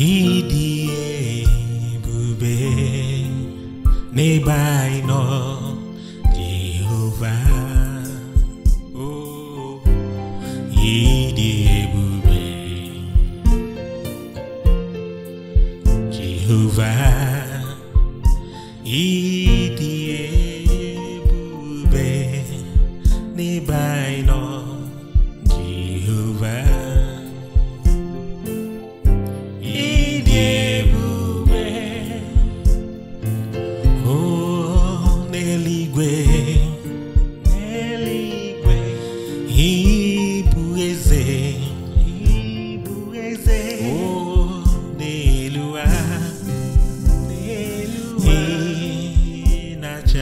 ịdị bube ne anyị nọ Oh, ịdị bube, Jehova ịdị bube ne anyị nọ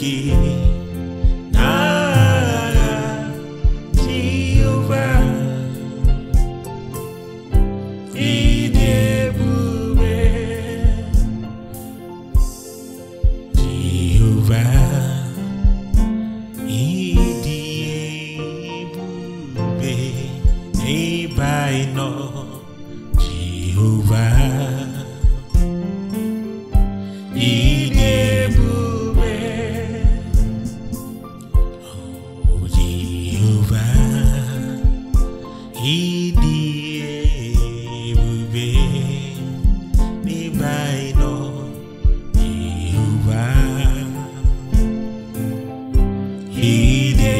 kí na tí ó bá ìdí ebúbe tí ó bá ìdí ebúbe nígbà iyi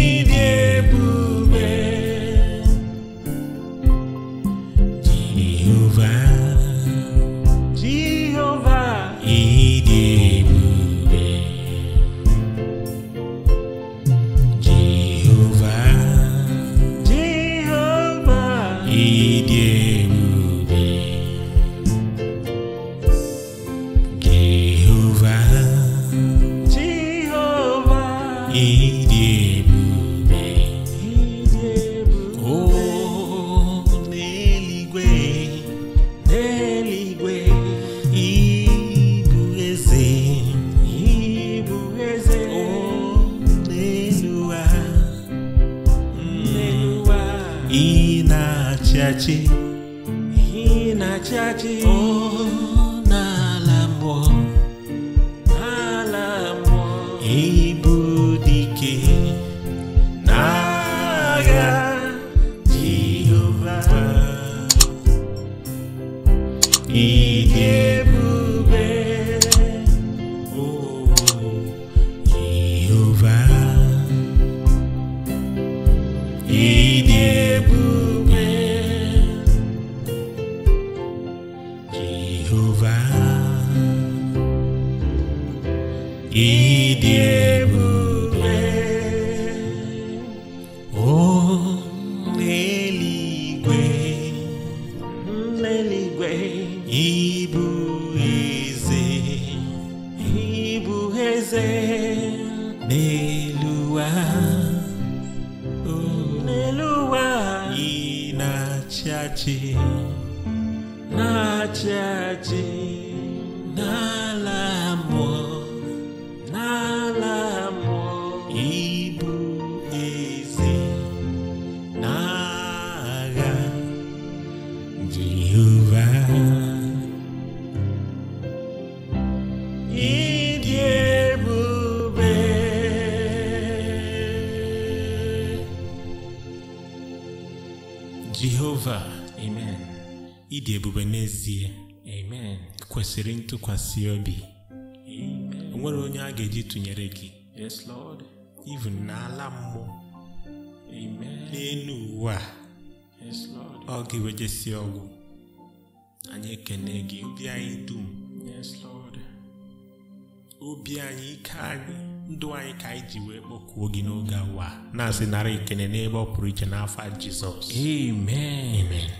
ina inachaji oh. Jehova ịdị ebube o n'eligwe n'eluigwe n'eluwa n'eluwa ị na-achị achị acha jina lamo na la lamo ibu ezi naga Jehovah Idie bube Jehovah Amen ịdị ebube n'ezie kwesịrị ntụkwasị obi nwere onye a ga-eji tụnyere gị na even n'ala mmụọ n'elu ụwa ọ gị wejesi ọgwụ anyị ekene gị obi anyị dum obi anyị ike anyị ndụ anyị ka anyị ji wee kpọkuo gị n'oge awa na-asị narị ekene n'ebe ọ pụrụ iche n'afọ jizọs amen